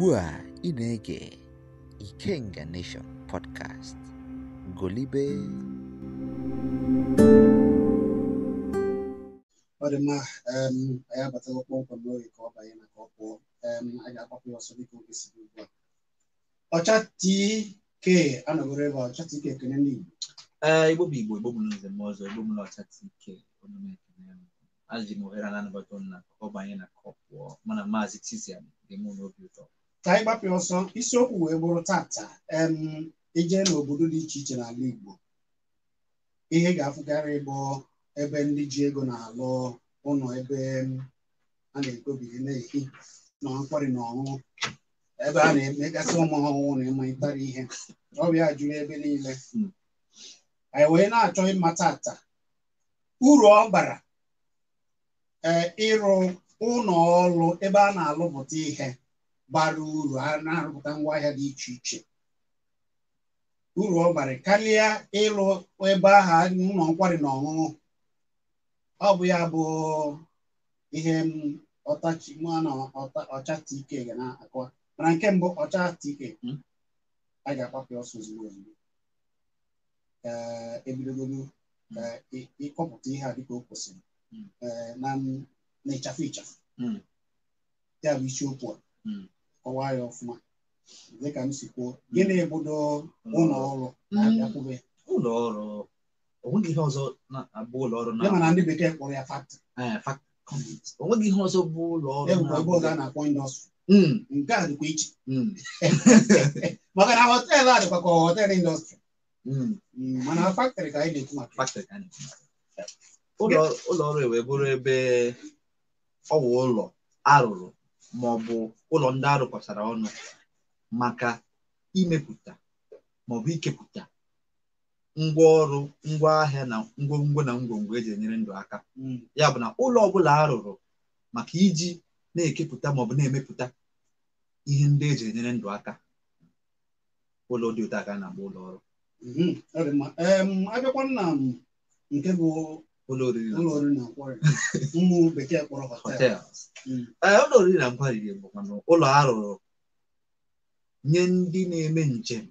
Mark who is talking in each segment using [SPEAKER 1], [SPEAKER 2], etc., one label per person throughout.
[SPEAKER 1] ugbu a ị na-ege Ikenga Nation podcast golibe
[SPEAKER 2] ọ dị mma anyị abatala kpọmkwem n'oge ka ọ banye na ka ọ pụọ ga ya ọsọ dịka oge siri ugbu a ọcha tk anọgoro ebe ọcha tk ekene ndị eh, Igbo bụ Igbo Igbo n'ụzọ m ọzọ Igbo n'ọcha tk
[SPEAKER 3] m ohere na anabata na ọ banye na ka ọ pụọ mana maazị Tizia dị m n'obi ụtọ
[SPEAKER 2] ka anyị gbapịa ọsọ isiokwu wee bụrụ tata eje e n'obodo dị iche iche n'ala Igbo ihe ga-afụkarị bụ ebe ndị ji ego na-alụ ụlọ ebe a na-ekpobiri na-ehi nọ nkwari na ọṅụṅụ ebe a na-emegasị ụmụ ọhụụ na ịmụtara ihe ọbịa juru ebe niile anyị wee na-achọ ịma tata uru ọ bara eh, ịrụ ụlọ ọrụ ebe a na-alụpụta ihe bara uru a na-arụpụta ngwaahịa dị iche iche uru ọ bara karịa ịlụ ebe aha ụlọ nkwari na ọṅụṅụ ọ bụ ya bụ ihe ọtachi mụ na ọcha tike ga na-akọwa mana nke mbụ ọcha tike hmm. a ga-akwapụ ọsọ ozugbo ozugbo ebidogolu ịkọpụta ihe a dịka o kwesịrị hmm. na ịchafụ ịchafụ hmm. ya bụ isiokwu a kọwaa ya ọfụma dịka m si kwuo gịnị ebudo ụlọ mm. ọrụ mm. na-abịakwube ụlọ ọrụ onweghị ihe ọzọ
[SPEAKER 3] na-abụ ụlọ ọrụ na mana ndị bekee kpọrọ ya
[SPEAKER 2] faktị eh, onweghị ihe ọzọ bụ ụlọ ọrụ ebe ọzọ a na-akpọ indọstrị mm. nke a dịkwa iche maka na họteelụ a dịkwa ka họteelụ indọstrị mana faktịrị ka anyị na-ekwu maka ụlọ ọrụ
[SPEAKER 3] e wee bụrụ ebe ọ wụ ụlọ arụrụ ma bụ ụlọ ndị arụkọtara ọnụ maka imepụta ma ọ bụ ikepụta ngwa ahịa na ngwongwo na ngwongwo eji enyere ndụ aka mm. ya bụ na ụlọ ọbụla a rụrụ maka iji na-ekepụta ma ọ bụ na-emepụta ihe ndị eji enyere ndụ aka ụlọ dị ụtọ aka na-agba ụlọ ọrụ
[SPEAKER 2] mm-hmm. abịakwa nna nke bụ ụlọ oriri na nkwari bụkwa mm. eh, ụlọ
[SPEAKER 3] arụrụ nye ndị na-eme njem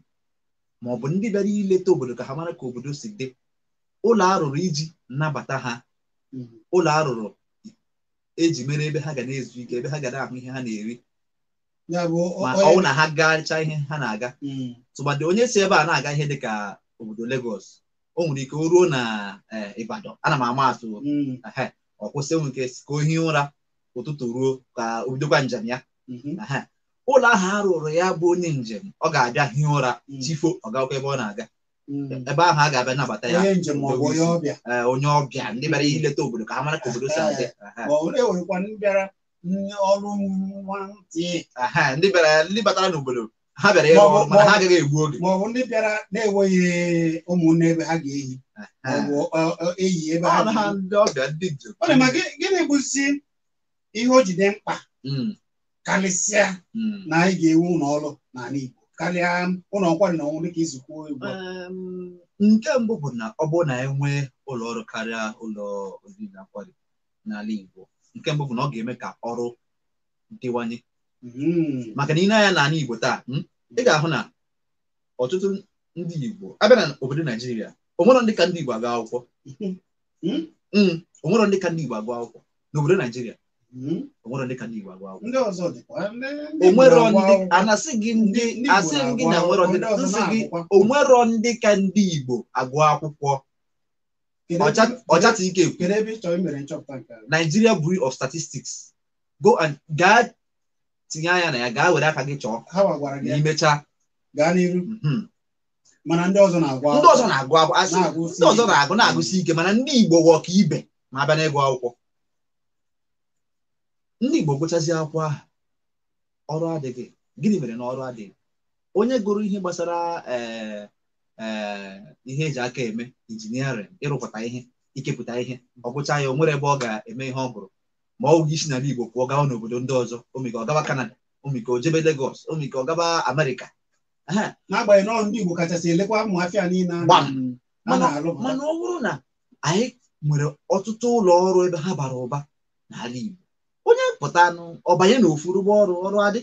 [SPEAKER 3] ma ọ bụ ndị bịara ileta obodo ka ha mara ka obodo si dị ụlọ arụrụ iji nnabata ha mm-hmm. ụlọ arụrụ eji mere ebe ha ga na-ezu ike ebe ha ga na-ahụ ihe ha na-eri ma ọ bụ na ha gachaa ihe ha na-aga mm. tụmadị onye si ebe a na-aga ihe dị ka obodo Legọs o nwere ike o ruo na eh, Ibadan ana m ama atụ mm. ọ nwe ike ka o hie ụra ụtụtụ ruo ka o bidokwa njem ya mm-hmm. ụlọ ahụ a rụrụ ya bụ onye njem ọ ga-abịa hie ụra mm. chifo ọ ebe ọ na-aga mm. ebe ahụ a ga-abịa nabata ya onye eh, ọbịa ndị bịara mm-hmm. ileta obodo ka ha mara ka obodo si adị eh, ndị batara n'obodo ha bịara ịrụ ọrụ mana ha agaghị
[SPEAKER 2] egbu oge ma ọ bụ ndị bịara na-enweghị ụmụnne ebe ha ga-eyi e, e, e, eyi ebe ha ọ dị ma gịnị bụzi ihe o jide mkpa hmm. karịsịa hmm. na anyị ga-ewu ụlọ ọrụ n'ala Igbo karịa ụlọ nkwari na ọnwụ dịka izukọ ugbu a nke mbụ bụ na ọ bụrụ na e nwee
[SPEAKER 3] ụlọ ọrụ karịa ụlọ oriri na nkwari n'ala Igbo nke mbụ bụ na ọ ga-eme ka ọrụ dịwanye
[SPEAKER 2] Hmm.
[SPEAKER 3] maka na ị na-anya n'ala Igbo taa hmm, ị ga-ahụ na ọtụtụ ndị Igbo abịa na obodo Naijiria onwero ndị ka ndị Igbo agụ akwụkwọ hmm. onwero ndị ka ndị Igbo agụ akwụkwọ n'obodo Naijiria onwero ndị ka ndị Igbo agụ akwụkwọ
[SPEAKER 2] onwero ndị anasị ndị
[SPEAKER 3] ndị ka ndị Igbo agụ akwụkwọ ọchata ike ekwu Nigeria of Statistics go and gaa tinye anya na ya gaa were aka gị chọọ na mhm. mana ndị ọzọ na-agụ na ndị ọzọ na-agụ na-agụsi ike mana ndị Igbo wụ ọka ibe ma abịa n'ịgụ akwụkwọ ndị Igbo gụchazi akwụkwọ ahụ ọrụ adịghị gịnị mere na ọrụ adịghị onye gụrụ ihe gbasara eh, eh, ihe eji aka eme injiniarịn ịrụpụta ihe ikepụta ihe ọ gụcha ya o nwere ebe ọ ga-eme ihe ọ gụrụ ma ọ gị si n'ala Igbo pụọ gawa n'obodo ndị ọzọ omika ọ gaba Kanada omika o jebe legos omika ọ gaba Amerịka n'agbanyeghị na ndị Igbo kachasị elekwa ụmụafịa niile mana ọ bụrụ na anyị nwere ọtụtụ ụlọ ọrụ ebe ha bara ụba n'ala Igbo onye pụta anụ ọbanye na ofurugbo ọrụ ọrụ adị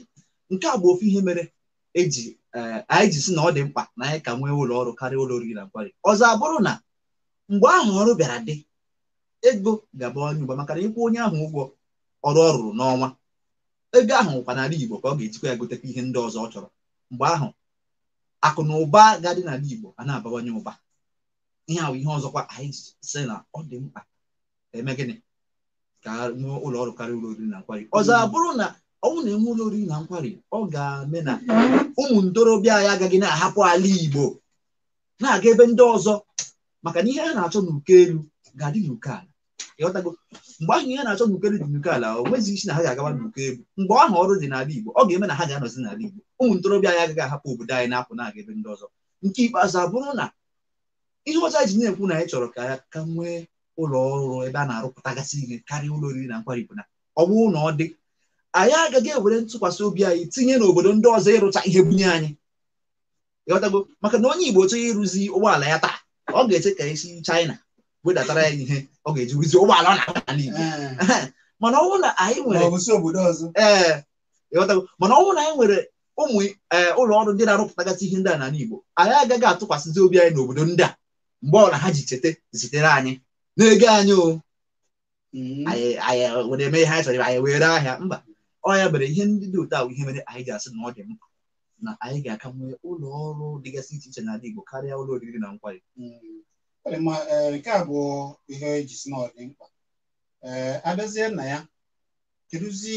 [SPEAKER 3] nke a bụ ofu ihe mere eji e, anyị ji si na ọ dị mkpa na anyị ka nwee ụlọ ọrụ karịa ụlọ oriri na nkwari ọzọ abụrụ na mgbe ahụ ọrụ bịara dị ego ga-abawanye ụba maka na ịkwụ onye ahụ ụgwọ ọrụ ọ rụrụ n'ọnwa ego ahụ kwa n'ala Igbo ka ọ ga-ejikwa ya gotekwa ihe ndị ọzọ ọ chọrọ mgbe ahụ akụ na ụba ga-adị n'ala Igbo a na-abawanye ụba ihe ahụ ihe ọzọkwa anyị si na ọ dị mkpa eme gịnị ka nwee ụlọ ọrụ karịa ụlọ oriri na nkwari ọzọ abụrụ na ọnwụ na-enwe ụlọ oriri na nkwari ọ ga-eme na ụmụ ntorobịa anyị agaghị na-ahapụ ala Igbo na-aga ebe ndị ọzọ maka na ihe a na-achọ n'uko elu ga-adị n'uke ala ịghọtago mgbe ahụ ihe na-achọ n'ukere dị n'uke ala o nweghị isi na ha ga-agawa n'uke egwu mgbe ahụ ọrụ dị n'ala Igbo ọ ga-eme na ha ga-anọzi n'ala Igbo ụmụ ntorobịa anyị agaghị ahapụ obodo anyị na-apụ na-aga ebe ndị ọzọ nke ikpeazụ abụrụ na ihe ọcha ji na-ekwu na anyị chọrọ ka ya ka nwee ụlọ ọrụ ebe a na-arụpụtagasị ihe karịa ụlọ oriri na nkwari bụ na ọ bụrụ na ọ dị anyị agaghị ewere ntụkwasị obi anyị tinye n'obodo ndị ọzọ ịrụcha ihe bunye anyị ịghọtago maka na onye Igbo chọghị ịrụzi ụgbọala ya taa ọ ga-eche ka esi China wedatara ya ihe ọ ga-ejiwizi ụgbọala ọ na-aga n'ala Igbo mana ọ na anyị nwere mana ọ eh, na anyị nwere ụmụ eh, ụlọ ọrụ ndị na-arụpụtagasị ihe ndị a n'ala Igbo anyị agaghị atụkwasịzi obi anyị n'obodo ndị a mgbe na ha ji cheta zitere anyị na anyị o hmm. anyị
[SPEAKER 2] eh, were eme ihe anyị chọrọ anyị were ahịa
[SPEAKER 3] mba ọ ya mere ihe ndị dị otu a ihe mere anyị ga-asị na ọ dị mkpa na anyị ga-aka nwee ụlọ ọrụ dịgasị iche iche n'ala Igbo karịa ụlọ oriri
[SPEAKER 2] na nkwari hmm. nke a bụ ihe ejisi na ọ dị mkpa ee abịazie nna ya kedụzi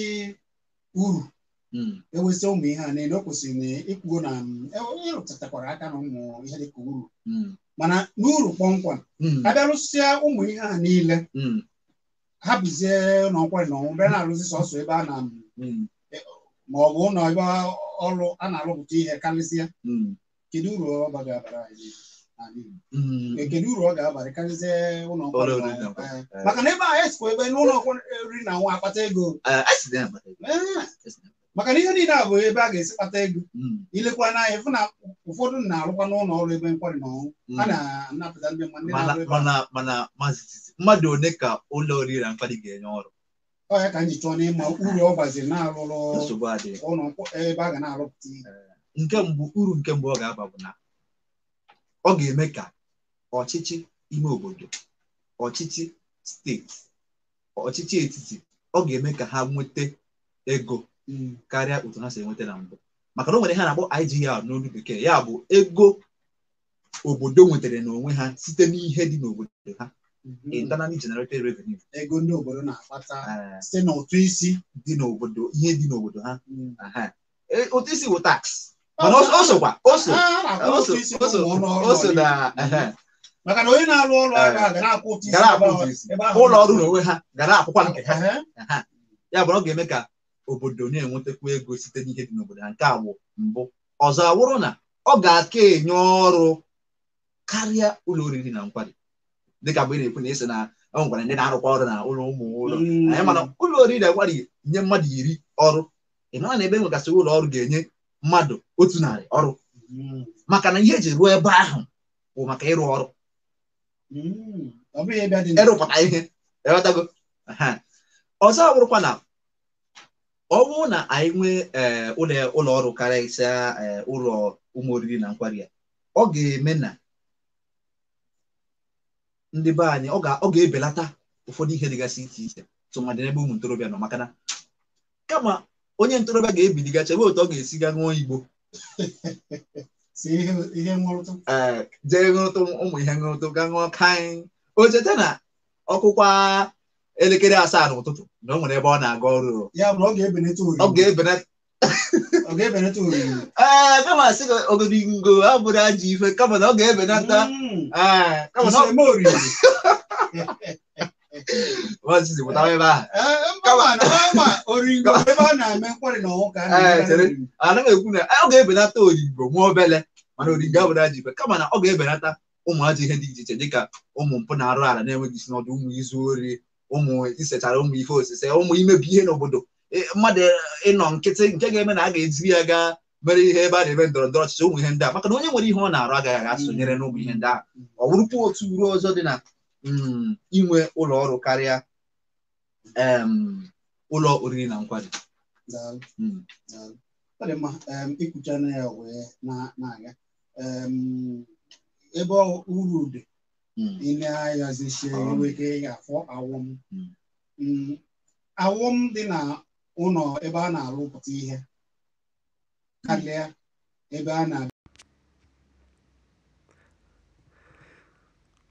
[SPEAKER 2] uru hmm. ewezi ụmụ ihe a niile o kwesịrị na ịkwuo na ịrụtatakwara e, e, e aka na ụmụ ihe dịka uru hmm. mana n'uru kpọmkwem hmm. abịarụsịa ụmụ ihe a niile ha bụzie n'ọkwa na ọnwụ bịa na-arụzi sọsọ ebe a na ma ọ bụ ụlọ ebe ọrụ a na-arụpụta ihe karịsịa kedu uru ọ bara anyị Mm. kedu uru ọ ga-abalị karịzie ụlọ eh, eh. maka na ebe a esikwa ebe n'ụlọ oriri na nwa akpata eh, ego maka na ihe niile a bụ ebe a ga-esi kpata ego mm. ilekwa n'anya ịfụ na ụfọdụ na-arụkwa n'ụlọ ọrụ ebe nkwari na ọnwụ mm. a na-anapụta ndị mmadụ one ka ụlọ oriri na nkwari ga-enye ọrụ ọ ka chọọ n'ịma uru ọ gbaziri na-arụrụ ụlọ ebe a ga na-arụpụta ihe nke mbụ uru nke mbụ ọ ga-aba bụ na ọ
[SPEAKER 3] ga-eme ka ọchịchị ime obodo ọchịchị steeti ọchịchị etiti ọ ga-eme ka ha nweta ego mm, karịa otu ha si enweta na mbụ maka na o nwere ha na-akpọ IGR n'olu bekee ya bụ ego obodo
[SPEAKER 2] nwetara n'onwe ha site n'ihe dị n'obodo ha mhm. internally generated revenue ego ndị obodo na-akpata ah. site n'ụtụ isi dị n'obodo ihe dị n'obodo ha ụtụ mm. e, isi bụ tax mana o sokwa o so na maka na onye na-arụ ọrụ ụlọ ọrụ na
[SPEAKER 3] onwe ha gara akwụkwa nke ha ya bụ ọ ga-eme ka obodo na-enwetakwu ego site n'ihe dị n'obodo ha nke awụ bụ mbụ ọzọ awụrụ na ọ ga-aka enye ọrụ karịa ụlọ oriri na nkwari dịka mgbe ị na-ekwu na esi na ọ gwara ndị na-arụkwa ọrụ na
[SPEAKER 2] ụlọ ụmụ ụlọ
[SPEAKER 3] hmm. anyị mana ụlọ oriri na nkwari nye mmadụ iri ọrụ ị mara na ebe nwegasị ụlọ ọrụ ga-enye mmadụ otu narị ọrụ hmm. maka na ihe eji ruo ebe ahụ bụ maka ịrụ ọrụ hmm. ịrụpụta ihe ewetago ọzọ bụrụkwa na ọ bụrụ na anyị nwee eh, ụlọ ọrụ karịsịa eh, ụlọ ụmụ oriri na nkwari ya ọ ga-eme na ndị be anyị ọ ga-ebelata ụfọdụ ihe dịgasị iche iche tụmadị n'ebe ụmụ ntorobịa nọ maka na kama onye ntorobịa ga-ebiliga chebe otu ọ ga-esi ga ṅụọ igbo eh, jee ṅụrụtụ ụmụ ihe ṅụrụtụ ga ṅụọ kaị o cheta na ọkụkwa elekere asaa n'ụtụtụ na o nwere ebe ọ na-aga ọrụ ọ ga-ebenata ee kama sị gị ogologo abụrụ ajọ ife kama na ọ ga-ebenata
[SPEAKER 2] hmm. eh,
[SPEAKER 3] anaghị ekwu na ọ ga-ebelata oringo nwa obele mana oringo abụrụ aja ibe kama na ọ ga-ebelata ụmụ ajọ ihe dị iche iche dịka ụmụ mpụ na-arụ ala na-enweghị isi n'ọdụ ụmụ izu ori ụmụ isechara ụmụ ife osise ụmụ imebi ihe n'obodo mmadụ ịnọ nkịtị nke ga-eme na a ga-eziri ya gaa mere ihe ebe a na-eme ndọrọ ndọrọ ọchịchị ụmụ ihe ndị a maka na onye nwere ihe ọ na-arụ agaghị aga sonyere n'ụmụ ihe ndị ahụ ọ bụrụkwa otu uru ọzọ dị na Um, inwe ụlọ ọrụ karịa um, ụlọ oriri na nkwari
[SPEAKER 2] hmm. ọ dị mma um, ikwuchana ya wee na-aga ebe uru dị ile hmm. ayazisie nweke ga-afọ awọm hmm. awọm dị na ụlọ ebe a na-arụpụta ihe karịa ebe a na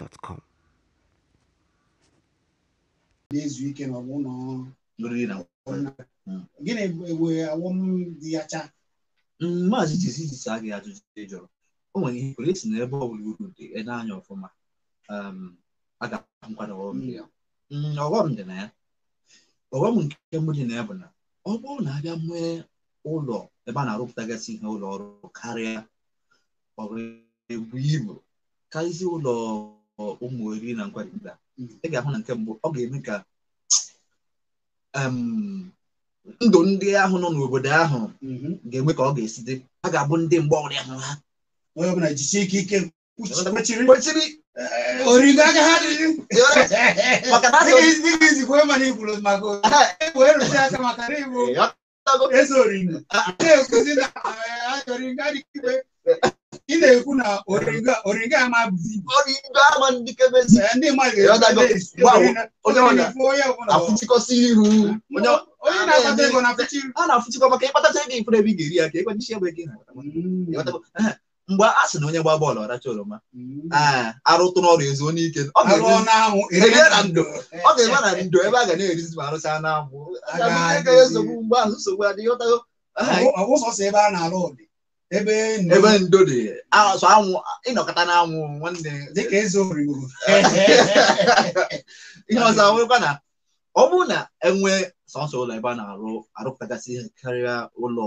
[SPEAKER 1] gmail.com
[SPEAKER 2] na-ezu ike na ọbụna gịnị we awọm dị ya
[SPEAKER 3] cha mm, maazị jisi jisi a gị ajụjụ ị jụrụ o nwere ihe kwere esi n'ebe ọ bụla uru dị ede anya ọfụma um, aga nkwado mm, ọghọm dị na ya ọghọm nke mbụ dị na ya bụ na ọ bụrụ na abịa nwee ụlọ ebe a na-arụpụtagasị ihe ụlọ ọrụ karịa ọrụ ga-ebu ibu karịsịa ụlọ ụmụ oriri na nkwarịta hmm. ị ga-ahụ na nke mbụ ọ ga-eme ka um, ndụ ndị ahụ nọ n'obodo ahụ hmm. ga-enwe ka ọ ga-esi dị ha ga-abụ ndị mgbe ọrụ ya ha onye ọbụla ike ike eh, ha
[SPEAKER 2] maka na e na igbo eze na-ekwuzi ah, ah. na na-ekwu na origo ama ndị na ego na ga-eri
[SPEAKER 3] ya ka e mm. mgbe a sị na onye gba bọọlụ ọracha oroma mm. arụtụ n'ọrụ ezu onye ike ọ ga na ndo ebe a ga na-erizi ma nsogbu mgbe nsogbu adịghị ebe ndo dị
[SPEAKER 2] so anwụ ịnọkọta n'anwụ anwụ nwanne dịka eze origoro ihe ọzọ awụrụkwa na
[SPEAKER 3] ọ bụrụ na enwe sọsọ ụlọ ebe a na-arụ arụpụtagasị ihe karịa ụlọ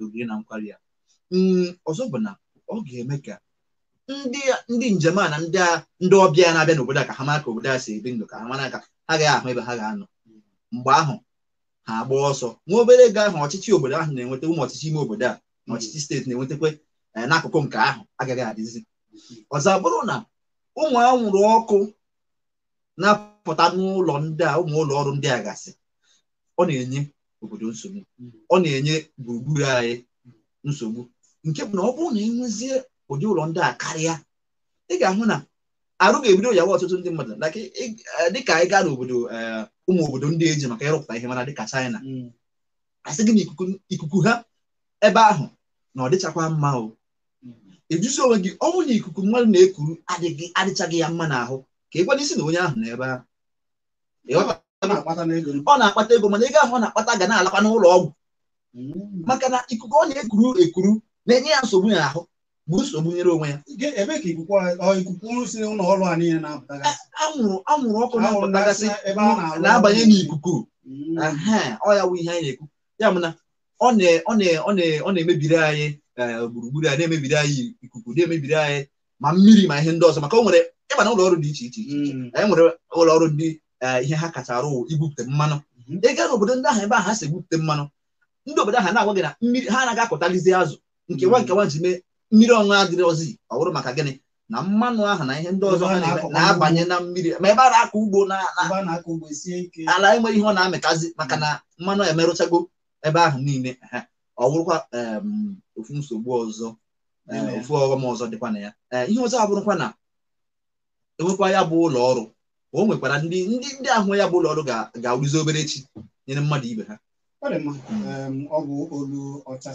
[SPEAKER 3] oriri na nkwari ya mm, ọzọ bụ na ọ ga-eme ka ndị njem a na ndị ọbịa na-abịa n'obodo a ka ha mara ka obodo a si ebi ndụ ka ha mara ka ha gaghị ahụ ebe ha ga-anọ mgbe ahụ ha agba ọsọ nwa obere ego ahụ ọchịchị obodo ahụ na-enweta ụmụ ọchịchị ime obodo a na ọchịchị steeti na n'akụkụ nke ahụ agaghị adịzi ọzọ bụrụ na ụmụ anwụrụ ọkụ na-apụta n'ụlọ ndị a ụmụ ụlọ ọrụ ndị a gasị ọ na-enye obodo nsogbu ọ na-enye gburugburu anyị nsogbu nke bụ na ọ bụrụ na enwezie ụdị ụlọ ndị a karịa ị ga-ahụ na arụ ga-ebido yawa ọtụtụ ndị mmadụ eh, dịka anyị gaa n'obodo eh, ụmụ obodo ndị eji maka ịrụpụta ihe mara dịka China mm. asị gị na ikuku ha ebe ahụ na ọ dịchakwa mma o ejusi onwe gị ọnwụ na ikuku mmadụ na-ekuru adịghị adịchaghị ya mma n'ahụ ka ị gwada isi na onye ahụ n'ebe ebe ahụ ọ na-akpata ego mana ego ahụ ọ na-akpata ga na-alakwa n'ụlọ ọgwụ mm. maka na ikuku
[SPEAKER 2] ọ na-ekuru ekuru na-enye ya nsogbu n'ahụ bụ nsogbu nyere onwe ya anwụrụ ọkụ na-apụtagasị na-abanye
[SPEAKER 3] n'ikuku mm. ọ ya bụ ihe anyị na-ekwu ya mụ na ọ na-emebiri anyị eh, gburugburu anyị na-emebiri anyị ikuku na-emebiri anyị ma mmiri ma ihe ndị ọzọ maka o nwere ịba na ụlọ ọrụ dị iche iche mm. anyị nwere ụlọ ọrụ ndị eh, ihe ha kacha arụ igwupụta mmanụ mm-hmm. ịga gaa n'obodo ndị ahụ ebe ahụ ha si egwupụta mmanụ ndị obodo ahụ na-agwa gị na mmiri ha anaghị akọtalizi azụ nke mm. nwa nke nwa ji mee mmiri ọṅụṅụ adịrịzi ọ bụrụ maka gịnị na mmanụ ahụ na ihe ndị ọzọ na-abanye na mmiri ma ebe a na-akọ ugbo ala enwe ihe ọ na-amịtazi maka na mmanụ emerụchago ebe ahụ niile ọ bụrụkwa ofu nsogbu ọzọ ofu ọghọm ọzọ dịkwa na ya eh, ihe ọzọ abụrụkwa na enwekwa ya bụ ụlọ ọrụ o nwekwara ndị ndị ndị ahụ ya bụ ụlọ ọrụ ga-arụzi obere echi nyere mmadụ ibe ha
[SPEAKER 2] ọ bụ olu ọcha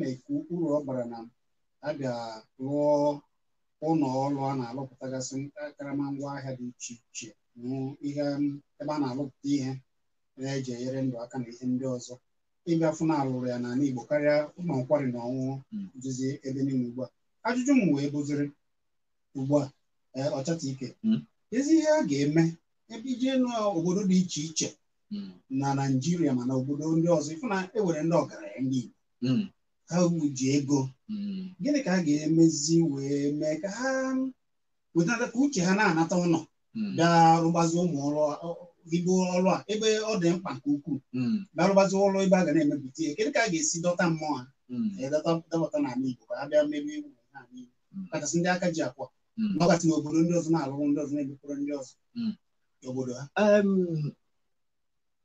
[SPEAKER 2] na-ekwu uru ọ gbara na a ga-rụọ ụlọ ọrụ a na-arụpụtagasị karama ngwa ahịa dị iche iche ebe a na alụpụta ihe na ji enyere ndụ aka na ihe ndị ọzọ ịbịa na alụrụ ya n'ala Igbo karịa ụmụ nkwari na ọṅụṅụ duzie hmm. ebe niile ugbu a ajụjụ m wee bụziri ugbu a eh, ọchata ike hmm. ezi ihe a ga-eme ebe ijee n'obodo dị iche iche hmm. na Naịjirịa ma na obodo ndị ọzọ ịfụ na ewere ndị ọgaranya ndị Igbo ha ji ego gịnị ka a ga-emezi wee mee ka ha wetanata ka uche ha na-anata ụlọ bịa rụgbazi ụmụ igbo ọrụ a ebe ọ dị mkpa nke ukwuu barụbazi hmm. ụlọ ebe a ga na-emepụta ihe kedu ka a ga-esi dọta mmụọ ha hmm. dọbata n'ala igbo ka ha bịa mebe egwu n'ala igbo hmm. kachasị ndị aka ji akwa ọkasị na obodo ndị ọzọ na-alụrụ ndị ọzọ na-emepụrụ ndị ọzọ obodo ha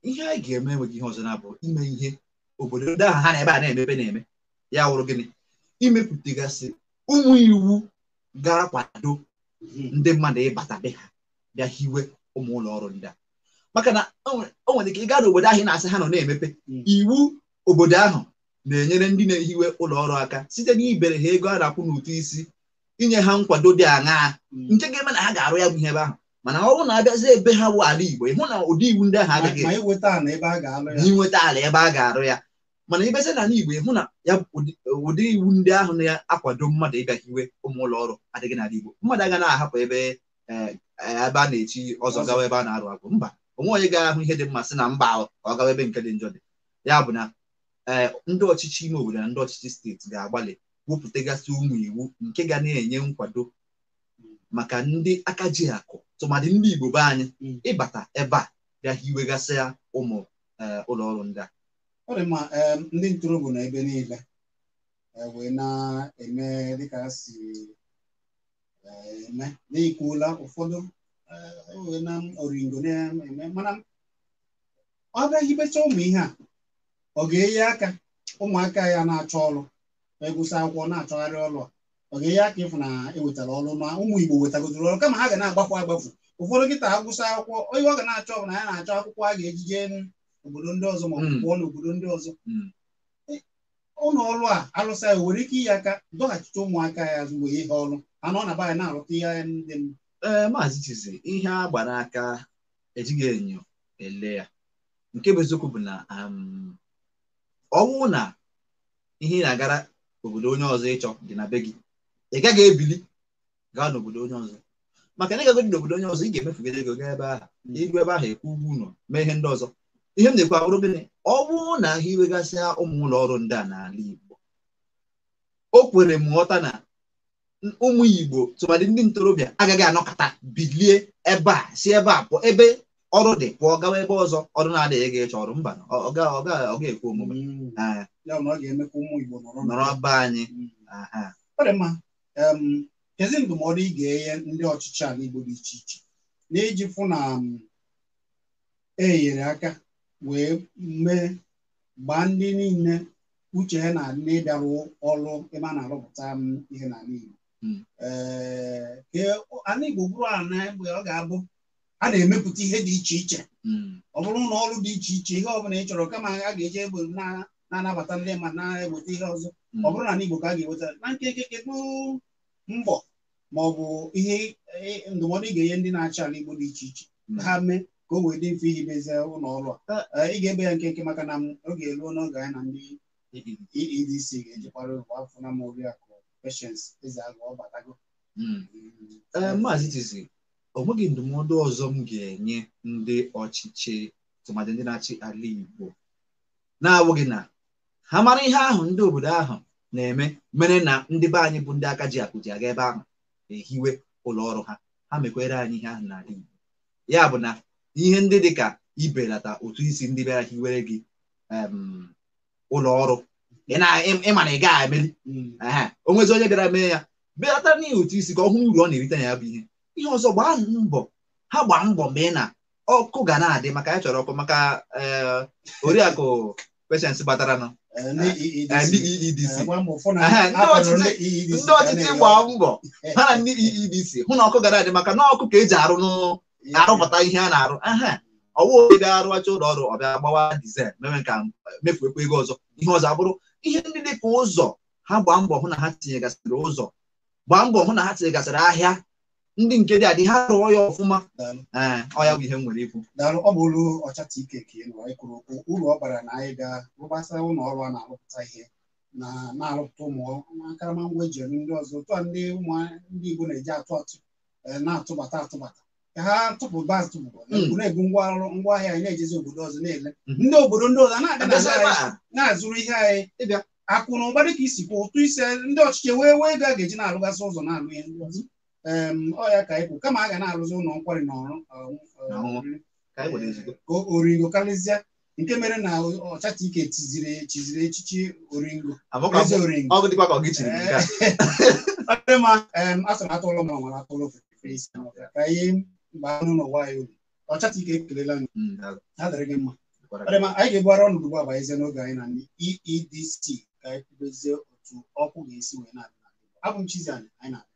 [SPEAKER 2] ihe anyị ga-eme enweghị ihe ọzọ na-abụ ime ihe obodo ndị
[SPEAKER 3] ahụ ha na ebe a na-emepe na-eme ya wụrụ gịnị imepụtagasị ụmụ iwu ga-akwado ndị mmadụ ịbata be ha bịa hiwe ụmụ ụlọ ọrụ ndị a maka na o nwere ike ịga n'obodo ahụ ị na-asị ha nọ na-emepe hmm. iwu obodo ahụ na-enyere ndị na-ehiwe ụlọ ọrụ aka site n'ibere ha ego a na-akwụ n'ụtụ isi inye ha nkwado dị aṅaa hmm. nke ga-eme na ha ga-arụ ya bụ ihe ebe ahụ mana ọrụ na-abịazi ebe ha bụ ala Igbo ịhụ na ụdị iwu ndị ahụ adịghị nweta ala ebe a ga-arụ ya mana ibezi na ala Igbo ịhụ na ya ụdị iwu ndị ahụ na-akwado mmadụ ịbịa hiwe ụmụ ụlọ ọrụ adịghị n'ala Igbo mmadụ agaghị na-ahapụ eh, ebe a na-echi ọzọ gawa ebe a na-arụ agụ mba onwe onye ga-ahụ ihe dị mmasị sị na mba ọ gawa ebe nke dị njọ dị ya bụ na eh, ndị ọchịchị ime obodo na ndị ọchịchị steeti ga-agbalị wepụtagasị ụmụ iwu nke ga na-enye nkwado maka ndị aka ji akụ tụmadị ndị Igbo be anyị hmm. ịbata ebe a bịa hiwegasị ya ụmụ eh, ụlọ ọrụ ndị a
[SPEAKER 2] ndị ntorobịa na niile e, wee na-eme dịka si eh, eme n'ikwuola ụfọdụ na oringo na-eme mana ọ bịaghị becha ụmụ ihe a ọ ga-enye aka ụmụaka ya na-achọ ọrụ egwụsị akwụkwọ na-achọgharị ọrụ ọ ga-enye aka ịfụ na ewetara ọlụ na ụmụ Igbo wetagodoro ọrụ kama ha ga na-agbafu agbafu ụfọdụ nkịta agwụsị akwụkwọ onye ọ ga na-achọ na ya na-achọ akwụkwọ a ga-ejije obodo ndị ọzọ ma ọ bụ pụọ n'obodo ndị ọzọ ụlọ ọrụ a alụsa ya nwere ike inye aka dọghachite ụmụaka ya azụ mgbe ihe ọrụ anọ na be na-arụta ihe ndị mma ee maazị Chizzy ihe a gbara aka ejighị
[SPEAKER 3] enyo ele ya nke bụ eziokwu bụ na um, ọnwụ na ihe ị na-agara obodo onye ọzọ ịchọ dị na be gị ị gaghị ebili gaa n'obodo onye ọzọ maka na ịgagodị n'obodo onye ọzọ ị ga-emefugide ego gaa ebe ahụ iru ebe ahụ ekwu ụgwọ ụlọ mee ihe ndị ọzọ ihe m na-ekwu abụrụ gịnị ọ bụrụ na ahịa iwegasịa ụmụ ụlọ ọrụ ndị a n'ala Igbo o kwere m ghọta na ụmụ igbo tụmadị ndị ntorobịa agaghị anọkọta bilie ebe a si ebe a pụọ ebe ọrụ dị pụọ gawa ebe ọzọ ọrụ na-adịghị ga ịchọ ọrụ mba ọ ga ekwu omume mm. ah.
[SPEAKER 2] nọrọ anyị mm. kezi ndụmọdụ ị ga-enye ndị ọchịchị ala igbo dị iche iche na-eji fụ na enyere e aka wee mee gbaa ndị niile uche ha na-adị n'ịbịarụ ọrụ ebe a na-arụpụta ihe n'ala igbo ee ana e, Igbo bụrụ ana mgbe ọ ga-abụ a na-emepụta ihe dị iche iche hmm. ọ bụrụ na ọrụ dị iche iche ihe ọ bụla ị chọrọ kama a ga-eji egbe na-anabata ndị ma na-eweta ihe ọzọ hmm. ọ bụrụ na ana Igbo ka a ga-eweta na nke kedu mbọ ma ọ bụ ihe e, ndụmọdụ ị ga-enye ndị na-achị ala Igbo dị iche iche hmm. ha mee ka o wee dị mfe iji mezie ụlọ ọrụ a ị ga-ebe ya nkenke maka na oge eruo n'oge anyị na ndị EDC e ga-ejikwara afọ na ma oriakụ questions eze agụ ọ batago hmm. Hmm. Eh, maazị o nweghị ndụmọdụ ọzọ
[SPEAKER 3] m ga-enye ndị ọchịchị tụmadị ndị na-achị ala Igbo na-awụghị na ha mara ihe ahụ ndị obodo ahụ na-eme mere na ndị be anyị bụ ndị aka ji akụ ji aga ebe ahụ ehiwe ụlọ ọrụ ha ha mekwere anyị ihe ahụ n'ala Igbo ya bụ na ihe ndị dị ka ibelata otu isi ndị bịara hiwere gị ụlọ ọrụ ịma na ị gaghị emeri hmm. o nwezi onye bịara mee ya bịata n'ihi otu isi ka ọ hụ uru ọ na-erite na ya bụ ihe ihe ọzọ gbaa mbọ ha gbaa mbọ mgbe ị na ọkụ ga na-adị maka ya chọrọ ọkụ maka eh, oriakụ peshens gbataranụ ndị ọchịchị gbaa mbọ ha na ndị EEDC hụ na ọkụ ga na-adị maka na ọkụ ka eji arụ e e arụpụta ihe a na-arụ aha ọwụ onye ga arụacha ụlọ ọrụ ọ bịa gbawa dizel mewe ka mefuekwa ego ọzọ ihe ọzọ abụrụ ihe ndị dị ka ụzọ ha gbaa mbọ hụ na ha tinyegasịrị ụzọ gbaa mbọ hụ na ha
[SPEAKER 2] tinyegasịrị ahịa ndị nke dị adị ha rụọ ya ọfụma ee ya bụ ihe m nwere ikwu daalụ ọ bụ ụlọ ọchata ike ka ị nọ kwuru okwu uru ọ bara na anyị ga rụgbasa ụlọ ọrụ a na-arụpụta ihe na na-arụpụta ụmụ akarama ngwa eji ndị ọzọ tụa ndị ụmụ ndị Igbo na-eji atụ atụ eh, na-atụbata atụbata ha tụpụba tụpụba hmm. na-ebu ngwa ngwaahịa anyị na-ejezi obodo ọzọ na-ele hmm. ndị obodo ndị ọzọ na-abịa na-azụrụ ihe anyị akụ na ụba dịka isi kwa ụtụ isi ndị ọchịchị wee wee ego a ga-eji na-alụgasị ụzọ na-alụ ihe ndị ọya ka ịkwụ kama a ga na-alụzi ụlọ nkwari na ọrụ oringo karịzịa nke mere na ọchacha ike tiziri chiziri echichi oringo ezi oringo ọ dị ma asụrụ atụlụ ma ka ihe mgbe anụ n'ụwa anyị uru ọchata ike ekelela anyị ha dịrị gị mma anyị ga ebugharị ọnụ ugbu a ezie n'oge anyị na EEDC ka anyị kwubezie otu ọkụ ga-esi wee na-abụ m Chizzy Ani anyị na adị